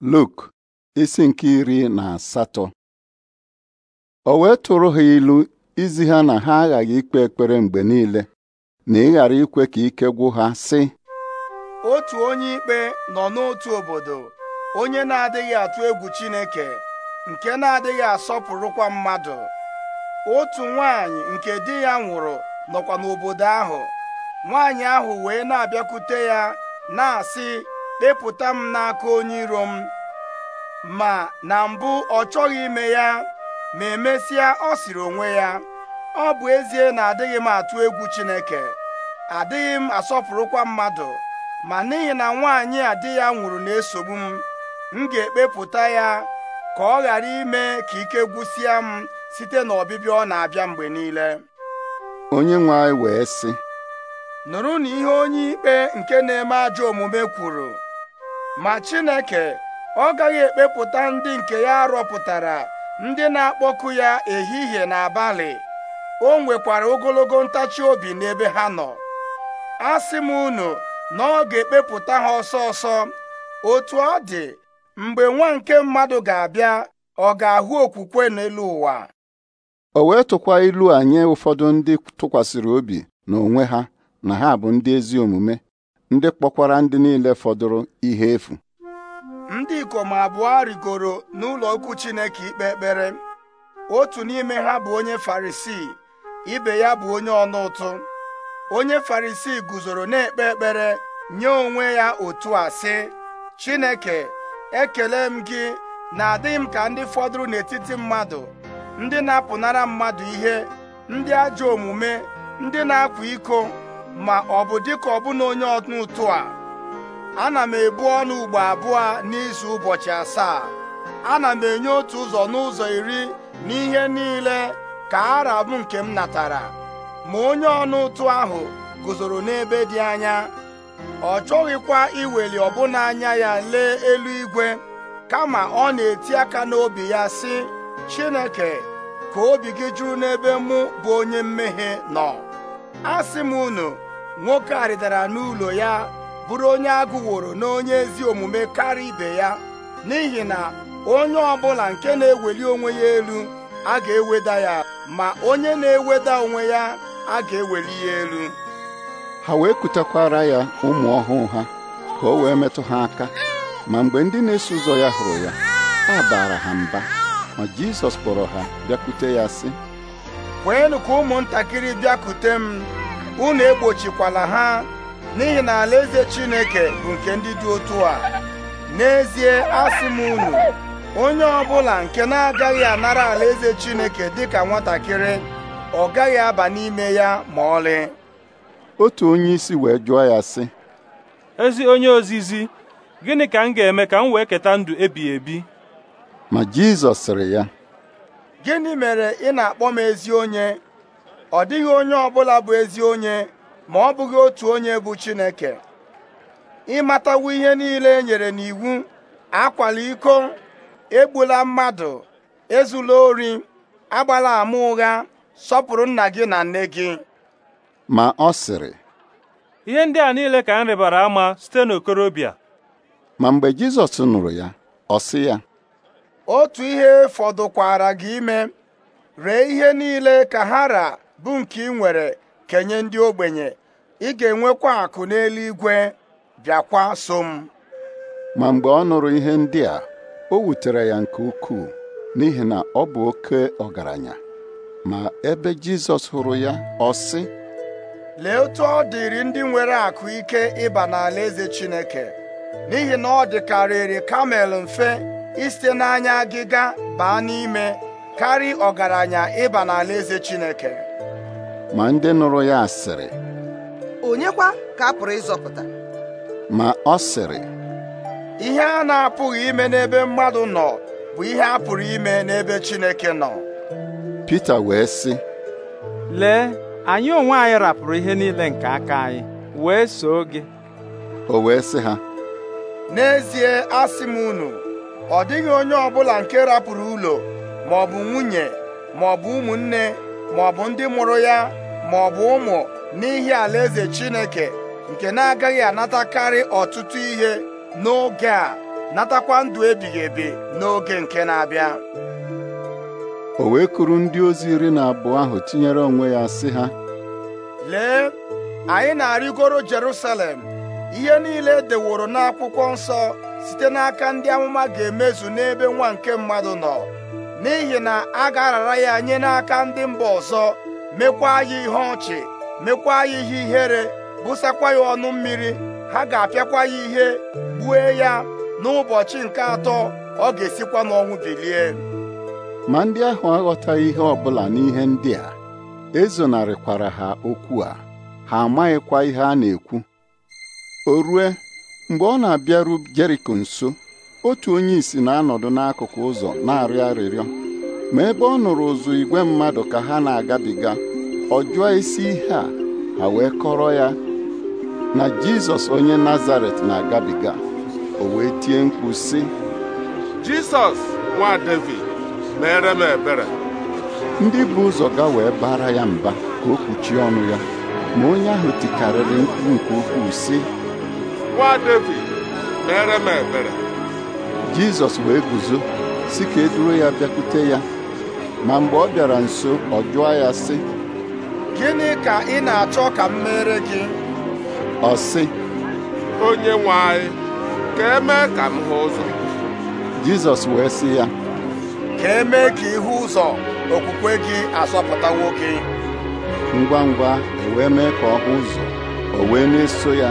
Luk isi nke iri na asatọ o wee tụrụ ha ilu izi ha na ha aghaghị ikpe ekpere mgbe niile na ịghara ikwe ka ike gwụ ha sị otu onye ikpe nọ n'otu obodo onye na-adịghị atụ egwu Chineke nke na-adịghị asọpụrụkwa mmadụ otu nwanyị nke di ya nwụrụ nọkwa n'obodo ahụ nwanyị ahụ wee na-abịakwute ya na-asị kpepụta m n'aka onye iro m ma na mbụ ọ chọghị ime ya ma emesịa ọ sịrị onwe ya ọ bụ ezie na adịghị m atụ egwu Chineke adịghị m asọpụrụkwa mmadụ ma n'ihi na nwaanyị a di ya nwụrụ na-esogbu m m ga-ekpepụta ya ka ọ ghara ime ka ike gwụsịa m site na ọbịbịa ọ na-abịa mgbe niile onye nwe anyị wee sị nụrụ na ihe onye ikpe nke na-eme ajọ omume kwuru ma Chineke ọ gaghị ekpepụta ndị nke ya rọpụtara ndị na-akpọku ya ehihie na abalị o nwekwara ogologo ntachi obi n'ebe ha nọ asị m unu na ọ ga-ekpepụta ha ọsọ ọsọ otu ọ dị mgbe nwa nke mmadụ ga-abịa ọ ga-ahụ okwukwe n'elu ụwa o wee tụkwa ilu a nye ụfọdụ ndị tụkwasịrị obi n'onwe ha na ha bụ ndị ezi omume ndị kpọkwara ndị niile fọdụrụ ihe efu ndị ikom abụọ rigoro n'ụlọ okwu Chineke ikpe ekpere otu n'ime ha bụ onye Farisii ibe ya bụ onye ọnụ ụtụ onye Farisii guzoro na-ekpe ekpere nye onwe ya otu a sị Chineke ekele m gị na adịghị m ka ndị fọdụrụ n'etiti mmadụ ndị na-apụnara mmadụ ihe ndị ajọ omume ndị na-akwa iko ma ọ bụ dịka ọbụna onye ọnụ ụtụ a ana m ebu ọnụ ugbo abụọ n'izu ụbọchị asaa ana m enye otu ụzọ n'ụzọ iri n'ihe niile ka ara bụ nke m natara ma onye ọnụ ụtụ ahụ guzoro n'ebe dị anya ọ chọghịkwa iweli ọbụna anya ya lee eluigwe kama ọ na-eti aka n'obi ya sị Chineke ka obi gị juru n'ebe mụ bụ onye mmehie nọ asị m unu nwoke a rịdara n'ụlọ ya bụrụ onye agụworo na onye ezi omume karịa ibe ya n'ihi na onye ọ bụla nke na-eweli onwe ya elu a ga-eweda ya ma onye na-eweda onwe ya a ga-eweli ya elu ha wee kutakwara ya ụmụ ọhụụ ha ka o wee metụ ha aka ma mgbe ndị na-eso ụzọ ya hụrụ ya a baara ha mba ma Jizọs kpọrọ ha bịakute ya sị kweenụ ka ụmụntakịrị bịakute m unu egbochikwala ha n'ihi na alaeze Chineke bụ nke ndị dị otu a n'ezie asị m unu onye ọbụla nke na-agaghị anara alaeze Chineke dịka nwatakịrị ọ gaghị aba n'ime ya ma ọlị otu onye isi wee jụọ ya sị ezi onye ozizi gịnị ka m ga-eme ka m wee keta ndụ ebighị ebi ma Jizọs sịrị ya gịnị mere ị na-akpọ m ezi onye ọ dịghị onye ọbụla bụ ezi onye ma ọ bụghị otu onye bụ Chineke ịmatawu ihe niile e nyere n'iwu akwala iko egbula mmadụ ezula ori agbala ama ụgha sọpụrụ nna gị na nne gị ma ọ sịrị ihe ndị a niile ka ha rịbara ama site n'okorobịa ma mgbe Jizọs nụrụ ya ọ sị ya otu ihe fọdụkwara gị ime ree ihe niile ka ha ra bụ nke ị nwere kenye ndị ogbenye ị ga-enwekwa akụ n'eluigwe bịakwa so m ma mgbe ọ nụrụ ihe ndị a o wutere ya nke ukwuu n'ihi na ọ bụ oke ọgaranya ma ebe Jizọs hụrụ ya ọ sị lee otu ọ dịrị ndị nwere akụ ike ịba n'ala eze Chineke n'ihi na ọ dịkarịrị kamel mfe isite n'anya agịga baa n'ime karị ọgaranya ịba n'ala eze Chineke ma ndị nụrụ ya sịrị onyekwa ka a pụrụ ịzọpụta ma ọ sịrị ihe a na-apụghị ime n'ebe mmadụ nọ bụ ihe a pụrụ ime n'ebe Chineke nọ Pita wee sị lee anyị onwe anyị rapụrụ ihe niile nke aka anyị wee soo gị o wee sị ha n'ezie asị m unu ọ dịghị onye ọbụla nke rapụrụ ụlọ ma nwunye ma ọ ụmụnne ma ọ bụ ndị mụrụ ya ma ọ bụ ụmụ n'ihi alaeze Chineke nke na-agaghị anatakarị ọtụtụ ihe n'oge a natakwa ndụ ebighị ebi n'oge nke na-abịa o wee kụrụ ndị ozi iri na abụọ ahụ tinyere onwe ya sị ha lee anyị na-arịgoro Jerusalem ihe niile e deworo n'akwụkwọ nsọ site n'aka ndị amụma ga-emezu n'ebe nwa nke mmadụ nọ n'ihi na a ga-arara ya nye n'aka ndị mba ọzọ mekwa ya ihe ọchị mekwa ya ihe ihere bụsakwa ya ọnụ mmiri ha ga-apịakwa ya ihe gbue ya n'ụbọchị nke atọ ọ ga-esikwa n'ọnwụ bilie ma ndị ahụ aghọtaghị ihe ọbụla n'ihe ndị a ezonarịkwara ha okwu a ha amaghịkwa ihe a na-ekwu o rue mgbe ọ na-abịaru Jeriko nso otu onye isi na-anọdụ n'akụkụ ụzọ na-arịọ arịrịọ ma ebe ọ nụrụ ụzụ igwe mmadụ ka ha na-agabiga ọ jụọ isi ihe a ha wee kọrọ ya na Jizọs onye Nazaret na-agabiga o wee tie mkpu sị Jizọs nwa David mere m ebere ndị bụ ụzọ ga wee bara ya mba ka o kpuchie ọnụ ya ma onye ahụ tikarịrị mkpu nke ukwuu sị nwa David mere m ebere jizọs wee guzo si ka e ya bịakwute ya ma mgbe ọ bịara nso ọ jụọ ya sị gịnị ka ị na-achọ ka m mere gị ọ sị onye nwe anyị ka emee ka m hụ ụzọ jizọs wee sị ya ka emee ka ịhụ ụzọ okwukwe gị asọpụta nwoke. ngwa ngwa ewee mee ka ọ hụ ụzọ o wee na-eso ya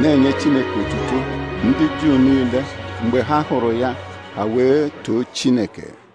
na-enye chineke otuto ndị juu niile mgbe ha hụrụ ya ha wee too Chineke